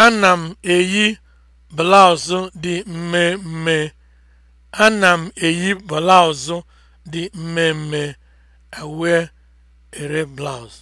Ana m eyi blaụzụ dị mmemme. Ana m eyi blaụzụ dị mmemme. I wear a blouse.